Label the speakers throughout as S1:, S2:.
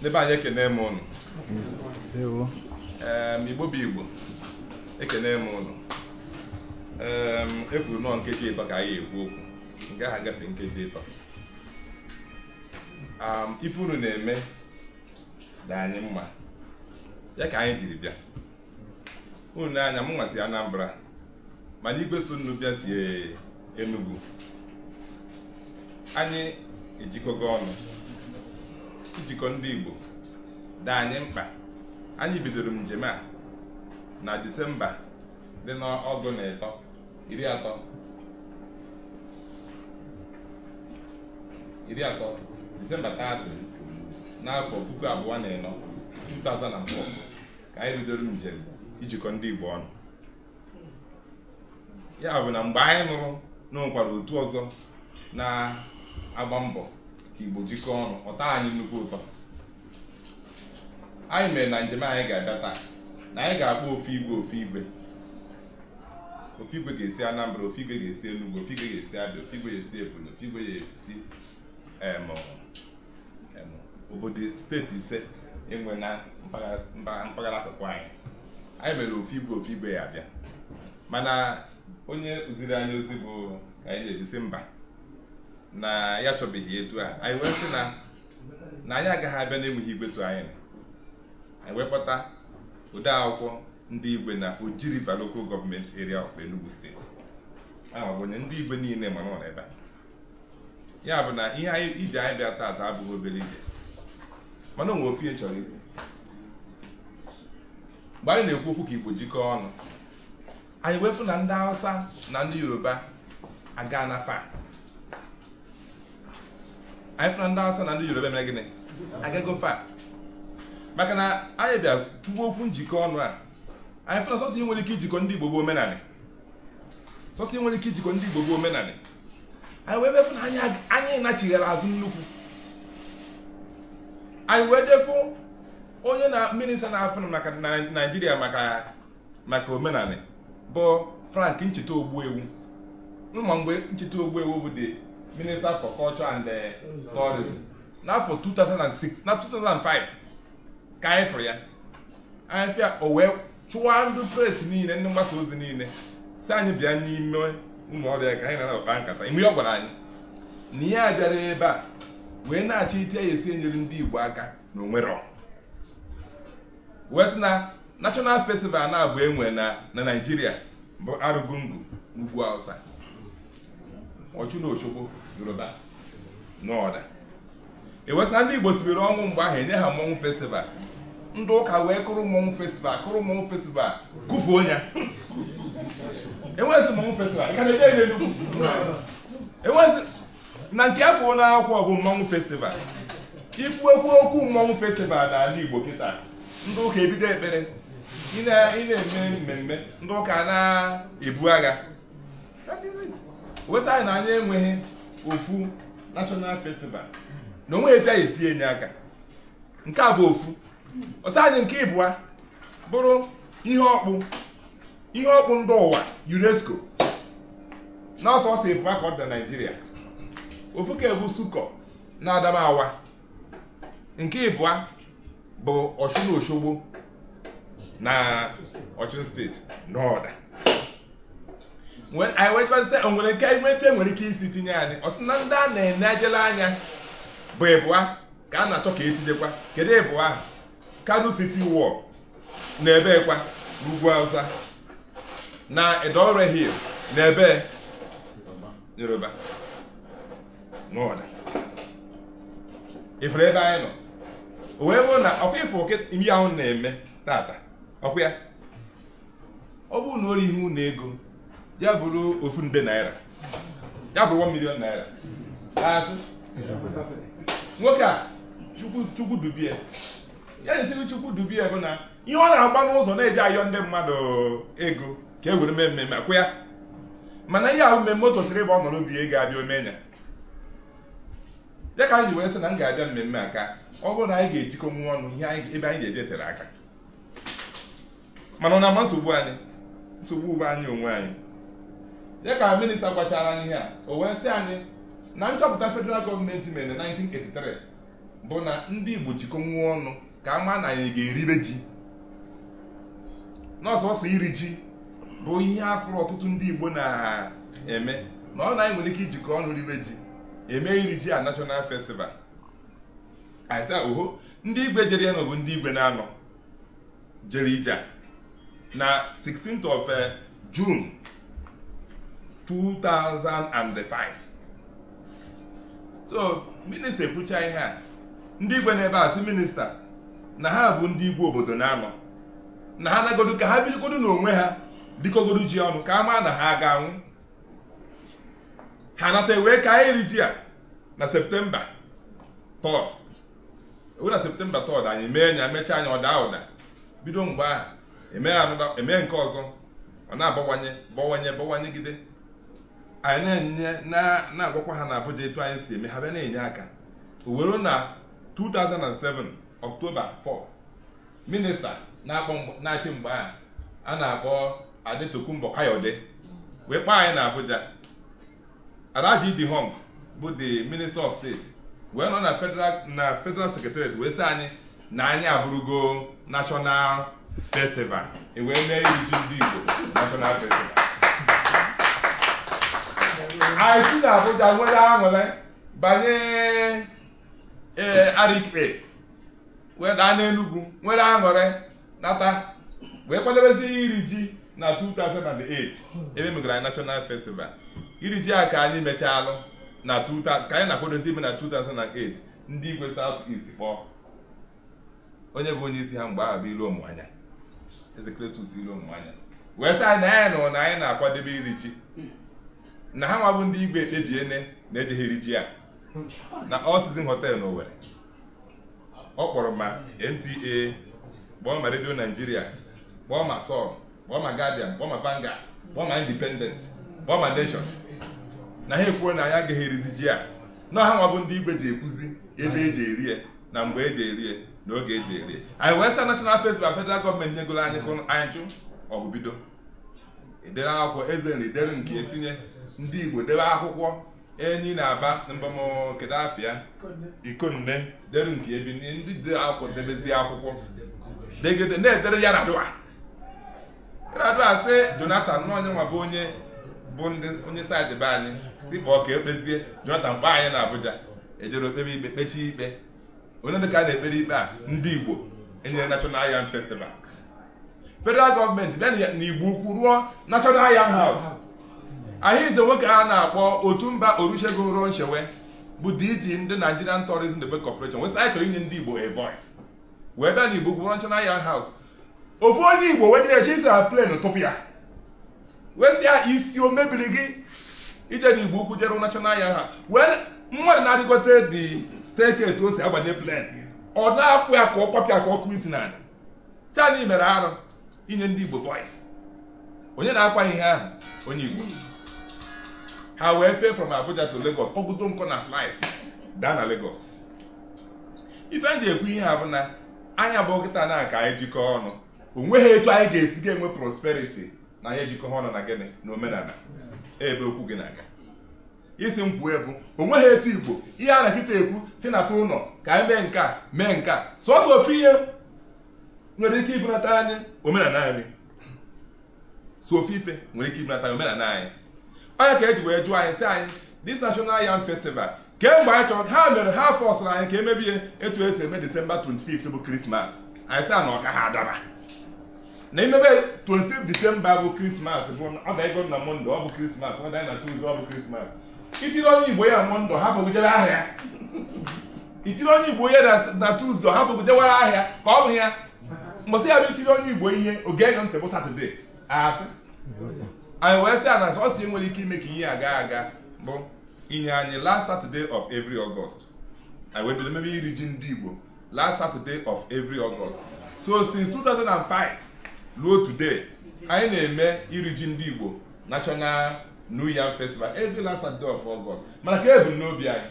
S1: n'ebe anyị ekene m ụnụ igbo bụ igbo ekene m ụnụ e kwuru nọọ nkeji ịtọ ka anyị ekwu okwu nke ahụ gafe nkeji ịtọ ife unu na-eme dị anyị mma ya ka anyị jiri bịa unu na-anya m nwasị Anambra mana igwe so nnu bịa si Enugu anyị ejikọgo ọnụ ijikọ ndị Igbo dị anyị mkpa anyị bidoro njem a na Disemba dị n'ọgụ na ịtọ iri atọ iri atọ Disemba 30 n'afọ puku abụọ na ịnọ 2004 ka anyị bidoro njem ijikọ ndị Igbo ọnụ ya bụ na mgbe anyị nụrụ na otu ọzọ na-agba mbọ ka igbo jikọọ ọnụ ọta anyị nnukwu ụtọ anyị mere na njem anyị ga-abịa taa na anyị ga-akpọ ofu igwe ofu igwe igwe ga-esi anambra ofu igwe ga-esi enugwu ofu igwe ga-esi abịa ofe igwe ga-esi ebonyi ofu igwe ga-esi obodo steeti ise enwe na mpaghara akụkụ anyị anyị mere ofe igwe ofu igwe ya abịa mana onye ziri anyị ozi bụ ka anyị na-ebisi mba na ya chọbeghị etu a anyị wee sị na na anyị agaghị abịa na-enweghị igwe so anyị anyị wekpọta ode akwụkwọ ndị igwe na Oji River Local Government Area of Enugu steeti ama onye ndị igwe niile ma nọ n'ebe a ya bụ na ihe anyị iji anyị bịa taata abụghị obere ije mana onwe ofe chọrọ ikwu mgbe anyị na-ekwu okwu ka Igbo jikọọ ọnụ anyị wefu na ndị Hausa na ndị Yoruba aga na faa. anyị fụna ndị Hausa na ndị Yoruba mere gịnị agago fa maka na anyị bịa kwuo okwu njikọ ọnụ a anyị fụna sọsọ ihe nwere ike ijikọ ndị Igbo bụ omenanị sọsọ ihe nwere ike ijikọ ndị Igbo bụ omenanị anyị wee befụ na anyị nachighara azụ nnukwu anyị wee jefụ onye na minista na-afụ na naijiria maka maka omenanị bụ frank ncheta ogbuewu ma mgbe ncheta ogbuewu bụ dị minister for culture and eh, tourism n'afọ 2006 na 2005 ka anyị fụrụ ya anyị fịa o wee chụwa ndị presi niile ndị mgbasa ozi niile si anyị bịa n'ime ụmụ ọrịa ka anyị na-akpa nkata ime ọ gwara anyị na ihe a bịara ebe a wee na-achọ ite ya esi enyere ndị igbo aka na onwero wee na national festival na-abụ enwe na na naijiria bụ arụgungu n'ugwu hausa ọchụ na ochogbo yoruba n'ọda ewesa ndị igbo sibiri ọnwụ mgbe ahụ enye ha mmọnwụ festival ndị ụka wee kụrụ mmọnwụ festival kụrụ mmọnwụ festival kụfuo ya enwezi mmọnwụ festival ka na-eje ebe nnukwu enwezi na nke afọ ụlọ akwụkwọ bụ mmọnwụ festival ikwu ekwu okwu mmọnwụ festival n'ala igbo kịta ndị ụka ebido ekpere ị na-eme mmemme ndị ụka na-ebu agha that is it wesa anyị na anya enweghị ofu national festival na onwe esi enye aka nke a bụ ofu ọsọ nke ịbụa bụrụ ihe ọkpụ ihe ọkpụ ndị ụwa UNESCO na ọsọ ọsọ ịbụa ka ọ dị na Naịjirịa ofu ka egwu sukọ na Adamawa nke ịbụa bụ Ọchụn Oshogbo na Ọchụn steeti n'ọda anyị wekwasị o nwere nke nweta nwere ike isi tinye anyị ọ ndị a na-ene ejela anya bụ ịbụa ka a na-achọ ka etinyekwa kedu ịbụa ahụ kano siti wall na ebe kwa n'ugwu na edore hill na ebe yoruba n'ọda ifere ebe anyị nọ o wee bụrụ na ọkwa ifo ihe ahụ na-eme tata ọkwa ya ọ bụrụ na o ihe unu ego ya bụrụ ofu nde naira ya bụrụ 1 million naira nwoke a chukwu dubie ya esiri chukwu dubie bụ na ihe ọ na-agba n'ụzọ na-eji ayọ ndị mmadụ ego ka e were mee mmemme akwụ ya mana ihe ahụ mmemme o tosiri ịba ọ nọrọ obi ego abịa omenya ya ka m ji wee sị na m ga-abịa mmemme aka ọ bụrụ na anyị ga-ejikọ nwa ọnụ ihe ebe anyị ga-eje tere aka mana ọ na ama nsogbu anyị nsogbu ugbo anyị onwe anyị dị ka minista gwachara anyị ihe a o wee sị anyị na nchọpụta federal gọọmenti mere na 1983 bụ na ndị Igbo jikọ ọnụ ka a maa na anyị ga-eribe ji n'ọsọsọ iri ji bụ ihe afụrụ ọtụtụ ndị Igbo na-eme na ọ na anyị nwere ike ijikọ ọnụ ribe ji eme iri ji a national festival oho ndị igwe jere ya bụ ndị igwe na-anọ jere ije na 16th of eh, June 2005 so minista ekwucha ihe a ndị igwe n'ebe a si minista na ha bụ ndị igwe obodo na-anọ na ha nagodu ka ha bidogodu n'onwe ha dịkogodu ji ọnụ ka a maa na ha ga-anwụ ha nata ewee ka anyị iri ji a na septemba 3 ewu na septemba tod anyị mee nya mechaa anya ụda ụda bido mgbe ahụ emee e nke ọzọ ọ na-abawanye bawanye bawanyegide anyị na-enye na-agwakwa ha na Abuja etu anyị si eme ha bịa na-enye aka owero na 2007 Ọktoba 4 minista na-achị mgbe a a na-akpọ Adetokunbo Kayode wee kpaa anyị na Abuja Alhaji Hong bụ the minista of steeti wee nọ na federal na federal secretariat wee sị anyị na anyị abụrụgo national festival e wee mee iji ndị Igbo national festival anyị si na nwere aṅụrị banye ee Arikpe wee daa n'Enugwu nwere aṅụrị nata wee kwadebezi iri ji na 2008 ebe megara anyị National Festival iri ji a ka anyị mechalụ na ka anyị na-akwadozi ime na 2008 ndị igwe South East kpọọ onye bụ onye isi ha mgbe ahụ bụ ilu ụmụanya eze Kristus ilu ụmụanya wee sị anyị na anyị nụrụ na anyị na-akwadebe iri ji na ha nwa bụ ndị igwe ekpebiene na-ejegheri ji ya na All Season Hotel na Owerri ọ kpọrọ ma NTA kpọọ ma Nigeria kpọọ ma Sun kpọọ ma Guardian kpọọ ma banga kpọọ ma Independent kpọọ ma Nation na ha ekwuo na anyị agaghị erizi ji a na ha nwa bụ ndị igwe ji ekwuzi ebe eji eri ya na mgbe eji eri ya na oge eji eri ya anyị wee sa National Festival federal gọọmenti nyegola anyị anyị jụ ọgụ bido idere akwụkwọ eze na idere nke etinye ndị igbo debe akwụkwọ enyi na aba mbamkedu afịa ikonne dere nke ebi ndị dere akwụkwọ debezie akwụkwọ degede na-edere ya radua radua si jonathan n'onye nwa bụ onye bụ ndị onye saịdị be anyị si pụọ ka ekpezie jonathan mkpa anyị na abuja ejere okpebe ikpe kpechie ikpe onye ka a na-ekpere ikpe a ndị igbo enyere national yam festival federal gọọmenti bịa na igbo ukwu ruo national yan house anyị ize nwoke a na-akpọ otu mba olusegun ruo nchewe bụ dg ndị nigerian tourism development corporation wee sị anyị chọrọ inye ndị igbo a wee bịa na igbo gwụrụ national young house ofu onye igbo wee jere chisi na plen tụpụ ya wesịa isi o mebiri gị ije na igbo ukwu jere national yan house wee mmadụ na-adịgote dị staircase o si agbanye plen ọ na-akwụ ya ka ọ kwapịa ka ọ kụọ isi n'ala si anyị mere arụ inye ndị Igbo voice onye na-akwa ihe ahụ onye Igbo ha wee fee from Abuja to Lagos kpọgodo nkọ na flight daa na Lagos ife m ji ekwu ihe ha bụ na anya bụ nkịta na ka anyị jikọọ ọnụ o nweghị etu anyị ga-esi ga-enwe prosperity na anyị ejikọ ọnụ na gịnị na omenala ebe okwu gị na-aga isi m kwuo ebu o nweghị etu Igbo ihe a na nkịta ekwu si na tụ ụlọ ka anyị mee nke a mee nke a sọsọ ofe ihe nwere ike ịbụnata anyị omenala anyị so ofe nwere ike ịbụnata anyị omenala anyị onye ka eji wee jụọ anyị sị anyị dis national yam festival kemgbe anyị chọrọ ha mere ha fọsụrụ anyị ka emebie etu esi eme disemba 25 bụ krismas anyị sị na ọka ha adaba na imebe 25 desemba bụ krismas bụ dịgo na monde ọ bụ krismas ọ na tuzdee ọ bụ krismas itiri onye igbo ya monde ha bụgidere ahịa itiri onye igbo ya na tuzdee ha bụgidewara ahịa ka ọ bụ ya mbọsị ya bụ itiri onye igbo ihe oge enyo ntị bụ satọde asị anyị wee sị a na ọ si nwere ike ime ka ihe aga aga bụ inye anyị last Saturday of every August anyị wee bido mebe iri ji ndị igbo last Saturday of every August so since 2005 ruo today anyị na-eme iri ji ndị igbo national new yam festival every last Saturday of August mana ka ebumnobi anyị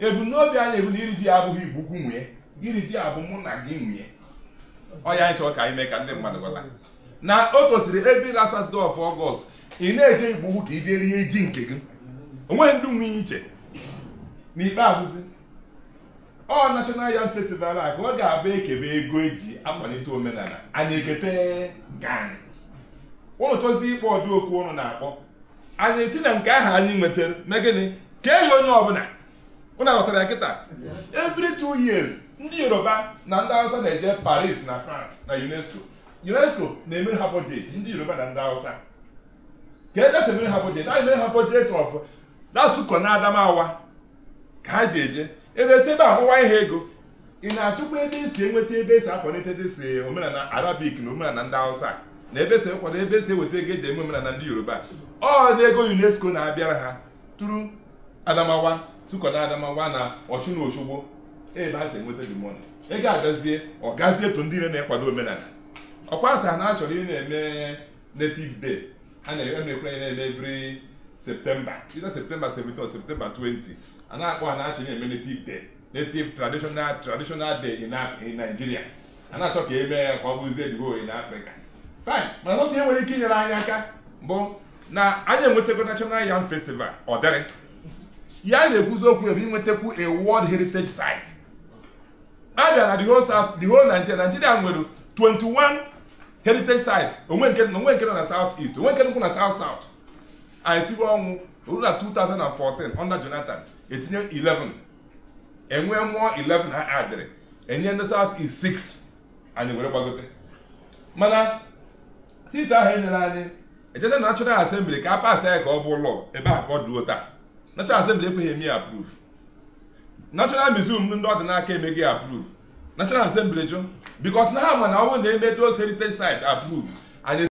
S1: ebumnobi anyị ebu na iri ji abụghị igbo ukwu nwunye iri ji abụ mụ na gị nwunye ọya anyị chọrọ ka anyị mee ka ndị mmadụ gwata na o tosiri ebe la satọde of ọgọst ị na-eje igbo ka i jee rie ji nke gị onweghị ndị nwunye iche n'ikpeazụ ọ nashọnal yan festival a ka ọ ga-abụ ekebe ego eji akwalite omenala anyị ekete gan ụnụ tozi ikpe ọdụ okwu ụnụ na-akpọ anyị esi na nke ahụ anyị nwetara megịnị ka eghị onye ọbụla ụnụ aghọtara ya kịta every two years ndị yoruba na ndị awụsa na-eje paris na france na unesco unesco na-emere ha bọjet ndị yoruba na ndị awụsa. ka ejesị emere ha bọjet anyị mere ha bọjet of dasụkọ na adamawa ka ha ji eje edesi ebe amụwa ihe ego ị na-achụkwa ebe esi enweta ebe esi akwalite desi omenala arabik na omenala ndị awụsa na ebe esi ekwado ebe esi eweta ego eji eme omenala ndị yoruba ọ dị ego unesco na-abịara ha tụrụ adamawa sụkọ na adamawa na ọchụ na osogbo ebe a sị enweta gị mọni ị ga-agazie ọ gazie etu ndị na-ekwado omenala ọkwa sị ha na-achọrọ ị na-eme native day a na-ekwe anyị na-eme every septemba either septemba 17 or septemba 20 a na-akpọ ha na-achọ na-eme native day native traditional traditional day in Nigeria a na-achọ ka eme mee ka ọ bụzie edigo in Africa fine mana ọsọ ihe nwere ike inyere anyị aka bụ na anyị enwetago national yam festival ọ dịrị ya na-ekwuzi okwu ebe inwetakwu a world heritage site abịa na the whole south the whole Nigeria Nigeria nwere 21 heritage sites onwe nke onwe nke nọ na south east onwe nke nkwụ na south south anyị siwe ọnwụ ruo na 2014 under Jonathan etinye 11 enwe mụọ 11 ha adịrị enye ndị south east 6 anyị were gbagote mana since ahụ enyere anyị ejeta na National Assembly ka a pasa ya ka ọ bụ ụlọ ebe a ka ọ dịo taa National Assembly ekweghị eme ya approve national museum ndị ọ dị emeghị approve national assembly jụ because na ha ma na ọ bụrụ na heritage site approve